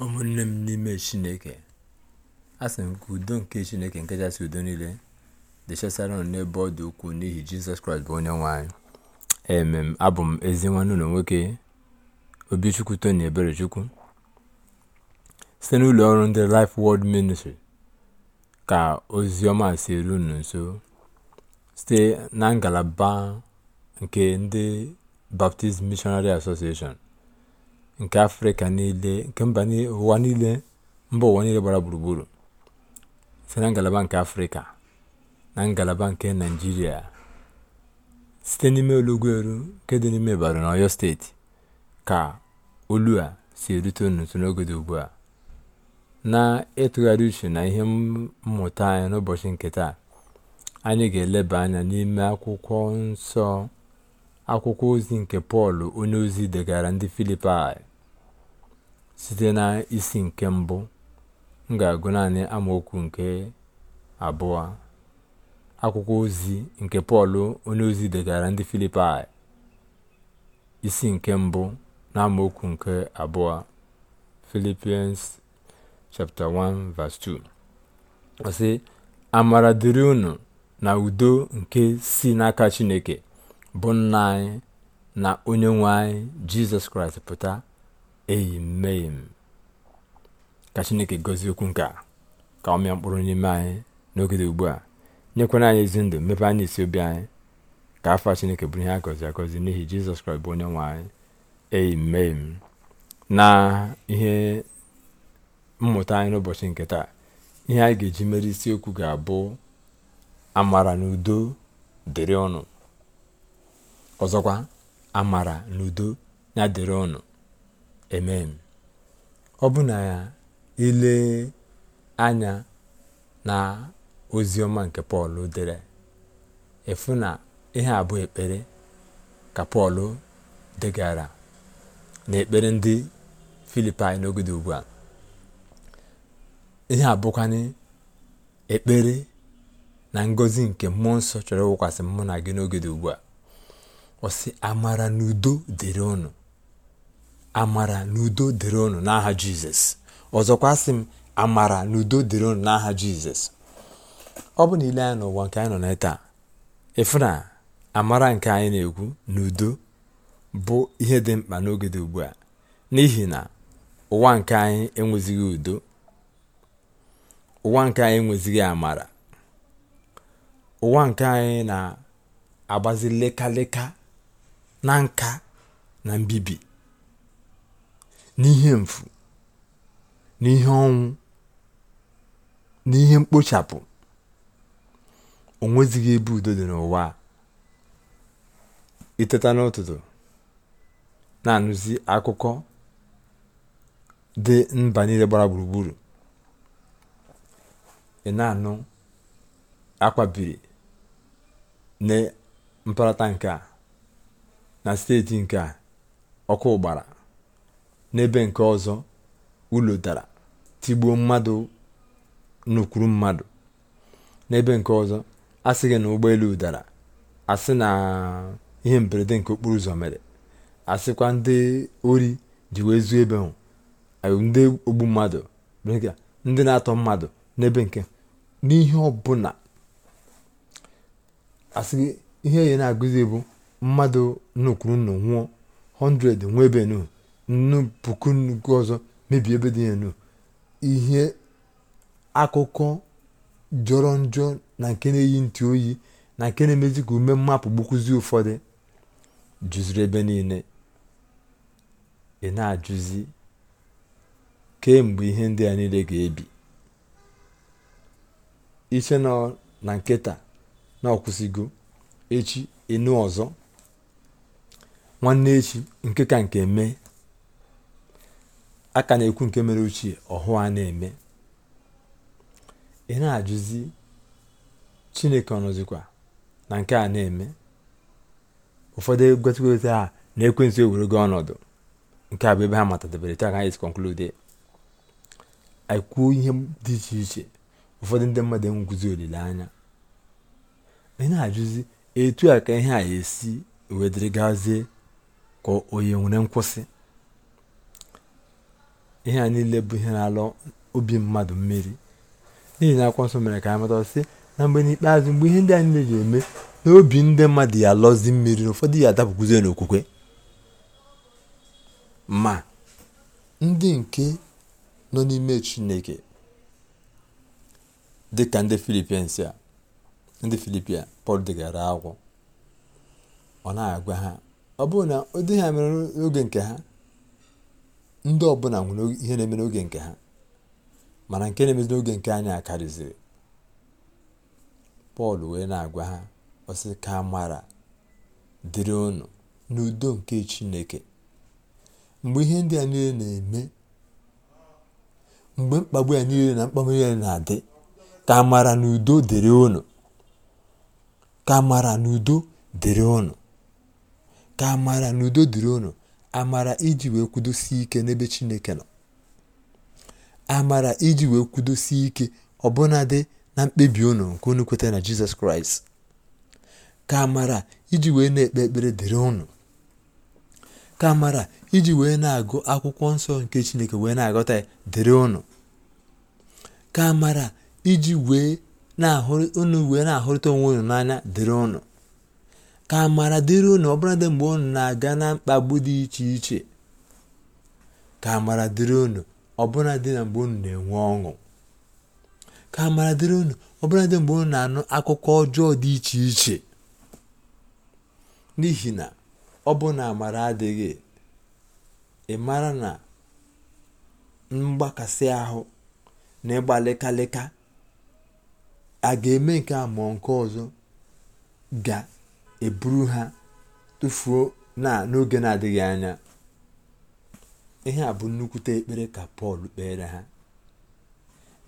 ụmụnne m n'ime chineke asị m ka udo nke chineke nke kachasị udo niile dị chesara n'ebe ọ dị ukwuu n'ihi jizọs kraịst bụ onye nwe emem abụ m ezi nwanne ụlọ nwoke obichukwu tony eberechukwu site n'ụlọ ọrụ ndị life world ministry ka ozi ọma si eru unu nso site na ngalaba nke ndị baptist missionary association. nke afrịka niile nke mba ụwa niile mba ụwa niile gbara gburugburu site na ngalaba nke afrịka na ngalaba nke naijiria site n'ime olugweru nke dị n'ime ibadan na ọyọ steeti ka olu a si erute n'otu n'oge dị ugbu a na-ịtụgharị uche na ihe mmụta anyị n'ụbọchị nke taa anyị ga-eleba anya n'ime akwụkwọ nsọ akwụkwọ ozi nke pọl onye ozi degara ndị filipaị. site na isi nke mbụ m ga-agụ naanị amaokwu nke abụọ akwụkwọ ozi nke pọl ozi degara ndị filipai isi nke mbụ na amaokwu nke abụọ Philippians chapter 1 2 ọ amara dịrị unu na udo nke si n'aka chineke bụ nna anyị na onye nwe anyị jizọs kraịst pụta amen ka chineke gozi okwu nke a ka ọ mịa mkpụrụ n'ime anyị n'oge dị ugbu a nyekwana anyị ezi ndụ mmepe anyị isi obi anyị ka afọ a chineke bụrụ ihe a gọzi agọzi n'ihi jizọs kraịst bụ onye nwe anyị amen na ihe mmụta anyị n'ụbọchị nke taa ihe anyị ga-eji mere isiokwu ga-abụ amara na udo dịrị ọnụ ọzọkwa amara na udo ya dịrị ọnụ amen ọ bụ na ya ile anya na ozi ọma nke pọl dere efu na ihe abụọ ekpere ka pọl degara na ekpere ndị filipin n'oge ugbu a ihe abụkwanye ekpere na ngọzi nke mmụọ nsọ chọrọ ịwụkwasị mmụ na gị n'oge ugbu a ọ amara n'udo dịrị ụnụ amara na udo dịrị unu n'aha jizọs ọzọkwa sị m amara na udo dịrị unu n'aha jizọs ọ bụ na anyị n'ụwa nke anyị nọ na taa amara nke anyị na-ekwu na udo bụ ihe dị mkpa n'oge dị ugbu a n'ihi na ụwa nke anyị enwezighị udo ụwa nke anyị enwezighị amara ụwa nke anyị na-agbazi lekaleka na nka na mbibi n'ihe mfu, n'ihe ọnwụ, n'ihe mkpochapụ, o nwezighi ebe udo dị n'ụwa iteta n'ụtụtụ na-anụzi akụkọ dị mba niile gbara gburugburu ị na-anụ akwabiri na mparata nke a na steeti nke ọkụ gbara n'ebe nke ọzọ ụlọ dara tigbuo mmadụ n'ukwuru mmadụ n'ebe nke ọzọ asị gị na ụgbọelu dara asị na ihe mberede nke okporo ụzọ mere asịkwa ndị ori ji wee zuo ebe ahụ ndị ogbu mmadụ ndị na-atọ mmadụ n'ebe nke n'ihe ọbụla asị gị ihe ya na-agụzi bụ mmadụ n'ukwuru nnọ nwụọ 100 nwebe nu nnu puku nnukwu ọzọ mebie ebe dị ya ihe akụkọ jọrọ njọ na nke na-eyi ntị oyi na nke na-emezi ka ume mmapụ gbukwuzi ụfọdụ juziri ebe niile ị na-ajụzi kemgbe ihe ndị a niile ga-ebi iche na nketa na ọkwụsịgo echi enu ọzọ nwanne echi nke ka nke mee a ka na-ekwu nke mere ochie ọhụụ a na-eme ị na-ajụzi chineke ọnọzikwa na nke a na-eme ụfọdụ egotgote a na ekwentị ewere gị ọnọdụ nke a bụ ebe ha matadebere taa ka anyị konklude anyị kwuo ihe dị iche iche ụfọdụ ndị mmadụ enweguzi olileanya ị na-ajụzi etu a ka ihe a esi wee gazie ka onye nwere nkwụsị ihe a niile bụ ihe na-alụ obi mmadụ mmiri n'ihi na akwụkwọ nsọ mere ka anyị mata sị na mgbe n'ikpeazụ mgbe ihe ndị a niile ga eme na obi ndị mmadụ ya alọzi mmiri na ụfọdụ ya adapụkwuzie n'okwukwe ma ndị nke nọ n'ime chineke dịka ndị filipians a ndị filipia pọl degara akwụ ọ na-agwa ha ọ bụrụ na ụdị ha n'oge nke ha ndị ọbụla nwere ihe na-eme n'oge nke ha mana nke na-emezi n'oge nke anyị akarịziri pọl wee na-agwa ha ọsị ka amara dịrị unu n'udo nke chineke mgbe ihe ndị a niile na-eme mgbe mkpagbu ya niile na mkpagbu niile na-adị ka amara na udo dịrị ụnụ ka amara na udo dịrị ka amara na udo dịrị unu amara iji wee kwudosie ike n'ebe chineke nọ amara iji wee kwudosie ike ọbụnadị na mkpebi unu nke unu kweta na jizọs kraịst ka amara iji wee na-ekpe ekpere dịrị unu ka amara iji wee na-agụ akwụkwọ nsọ nke chineke wee na-agọta ya dịrị unu ka amara iji wee na-ahụrụ unu wee na-ahụrịta onwe unu n'anya dịrị ụnụ. Ka amara dịrị unu ọbụladị mgbe unu na-aga na mkpagbu dị iche iche. Ka amara dịrị unu dị na mgbe unu na-enwe ọṅụ. Ka amara dịrị unu dị mgbe unu na-anụ akụkọ ọjọọ dị iche iche. N'ihi na ọ bụ na amara adịghị, ị mara na mgbakasị ahụ na ịgba a ga-eme nke a nke ọzọ ga eburu ha tufuo na n'oge na-adịghị anya ihe a bụ nnukwute ekpere ka pọl kpeere ha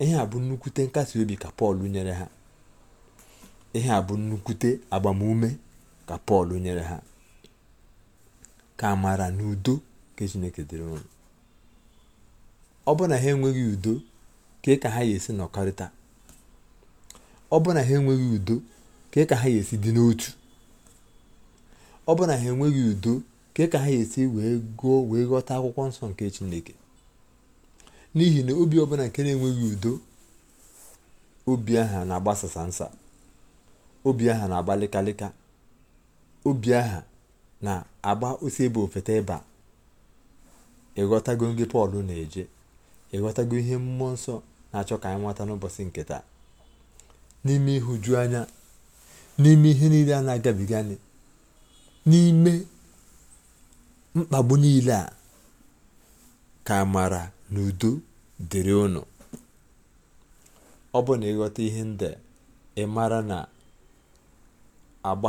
ihe a bụ nnukwute nkasi obi ka pọl nyere ha ihe a bụ nnukwute agbamume ka pọl nyere ha ka amara na udo nke chineke dịrị unu ọ bụ na ha enweghị udo ka ha esi nọkọrịta ọ na ha enweghị udo ka ha yesi esi dị n'otu ọ na ha enweghị udo nke ka ha esi wee gụọ wee ghọta akwụkwọ nsọ nke chineke n'ihi na obi ọbụla nke na-enweghị udo obi aha na-agbasasa nsa obi aha na-agbalịkalịka obi aha na-agba osi ebe ofeta ịba ịghọtago ngị pọl na-eje ịghọtago ihe mmụọ nsọ na-achọ ka anyị nweta n'ụbọchị nke taa n'ime ịhụju anya n'ime ihe niile a na-agabiga anyị n'ime mkpagbu niile a ka amara na udo dịrị ụnụ, ọ bụ na ịghọta ihe ndị ị mara na agba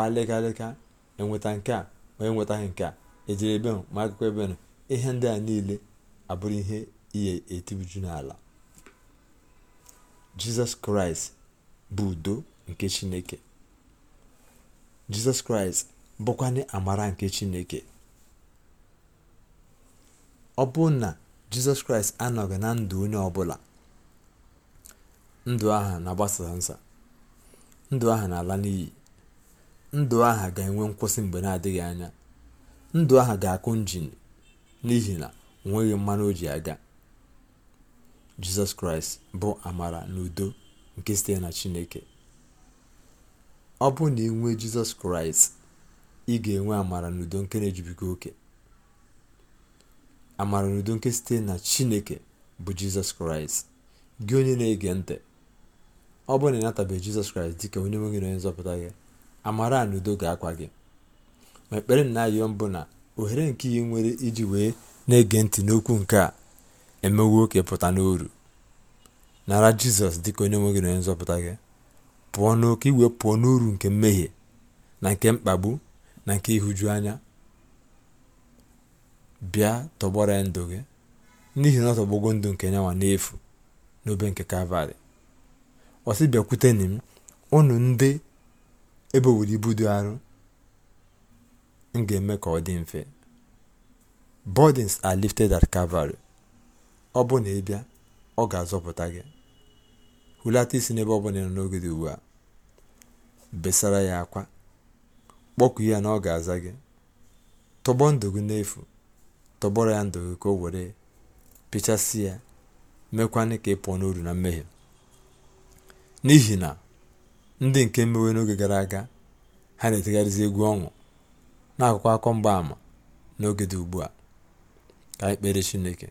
enweta e nke a ma enwetaghị nke a ejiri ebe ma akụkọ ebe n'ụ ihe ndị a niile abụrụ ihe ihe etibuju n'ala jizọs kraịst bụ udo nke chineke jizọs kraịst bụkwanị amara nke chineke ọ bụ na jizọs kraịst anọghị na ndụ onye ọbụla ndụ aha na-agbasa nsa ndụ aha na-ala n'iyi ndụ aha ga-enwe nkwụsị mgbe na-adịghị anya ndụ aha ga-akụ njin n'ihi na onweghị mmanụ o ji aga jizọs kraịst bụ amara na udo nke site na chineke ọ bụ na inwe jizọs kraịst ị ga-enwe amara n'udo nke na-ejubiga oke amara n'udo nke site na chineke bụ jizọs kraịst gị onye na-ege ntị ọ bụrụ na ị natabeghị jizọs kraịst dịka onye nwe gị na onye nzọpụta gị amara a n'udo ga-akwa gị ma ekpere na-ayọ mbụ na ohere nke ihe nwere iji wee na-ege ntị n'okwu nke a emewe nwoke pụta n'oru nara jizọs dịka onye nwe gị na onye nzọpụta gị pụọ n'oke iwe pụọ n'uru nke mmehie na nke mkpagbu na nke ịhụju anya bịa tọgbọrọ ya ndụ gị n'ihi na ọ tọgbogo ndụ nke nyanwa n'efu n'obe nke kalvarị ọ bịakwuteni m unu ndị ebe owere ibu dị arụ m ga-eme ka ọ dị mfe burdens are lifted at Calvary ọ bụ na ịbịa ọ ga-azọpụta gị hulata isi n'ebe ọ bụla nọ n'oge dị ugbu a besara ya akwa kpọku ya na ọ ga-aza gị tọgbọ ndụ gị n'efu tọgbọrọ ya ndụ gị ka o were pịchasị ya mekwanị ka ị pụọ n'uru na mmehie n'ihi na ndị nke mmewe n'oge gara aga ha na-etegharịzi egwu ọṅụ na-akụkọ akọ mgbaàmà n'oge dị ugbu a ka anyị kpere chineke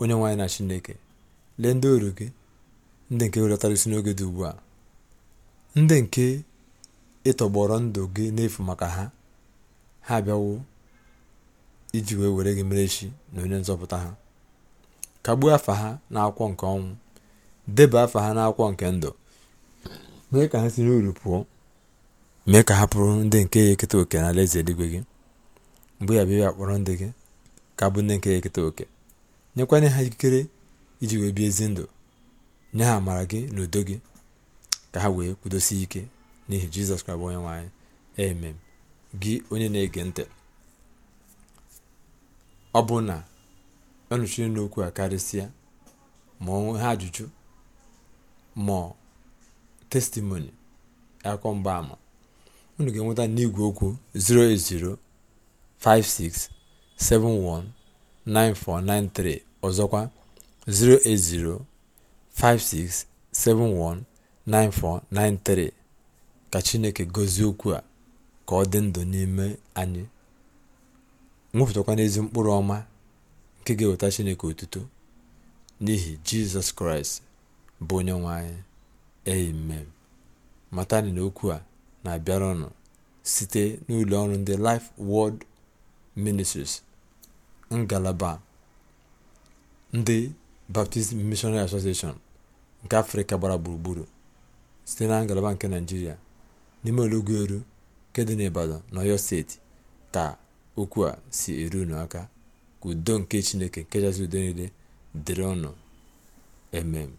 onye nwaanyị na chineke lee ndị oru gị ndị nke welatara isi n'oge dị ugbu a ndị nke ị tọgbọrọ ndụ gị n'efu maka ha ha abịawo iji wee were gị mere chi na onye nzọpụta ha kagbuo afa ha n'akwụkwọ nke ọnwụ deba afa ha n'akwụkwọ nke ndụ mee ka ha siri uru pụọ mee ka ha pụrụ ndị nke ya eketa oke n'ala eze eluigwe gị mgbe ya bịa kpọrọ ndị gị ka bụ ndị nke ya eketa oke nyekwanye ha ikikere iji wee bie ezi ndụ nye ha amara gị na udo gị ka ha wee kwudosie ike n'ihi jizọs kraịst bụ onye nwanyị anyị amen gị onye na-ege ntị ọ bụ na ọnụchiri e n'okwu a karịsịa ma ọnwe ha ajụjụ ma testimoni akwụkwọ ama unu ga-enweta n'igwe okwu 08056719493 ọzọkwa 08056719493 ka chineke gọzie okwu a ka ọ dị ndụ n'ime anyị nwepụtakwana ezi mkpụrụ ọma nke ga-eweta chineke otuto n'ihi jizọs kraịst bụ onye nwe anyị amen matani na okwu a na-abịara ọnụ site n'ụlọ ọrụ ndị Life wọld Ministries ngalaba ndị Baptist Missionary Association nke Afrịka gbara gburugburu site na ngalaba nke Naịjirịa n'ime olọgoru nke dị n'Ibadan na Ọyọ steeti ka okwu a si eru unu aka ka udo nke Chineke nke kachasị udo niile dịrị ọnụ emem